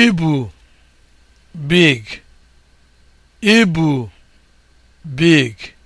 ibu big ibu big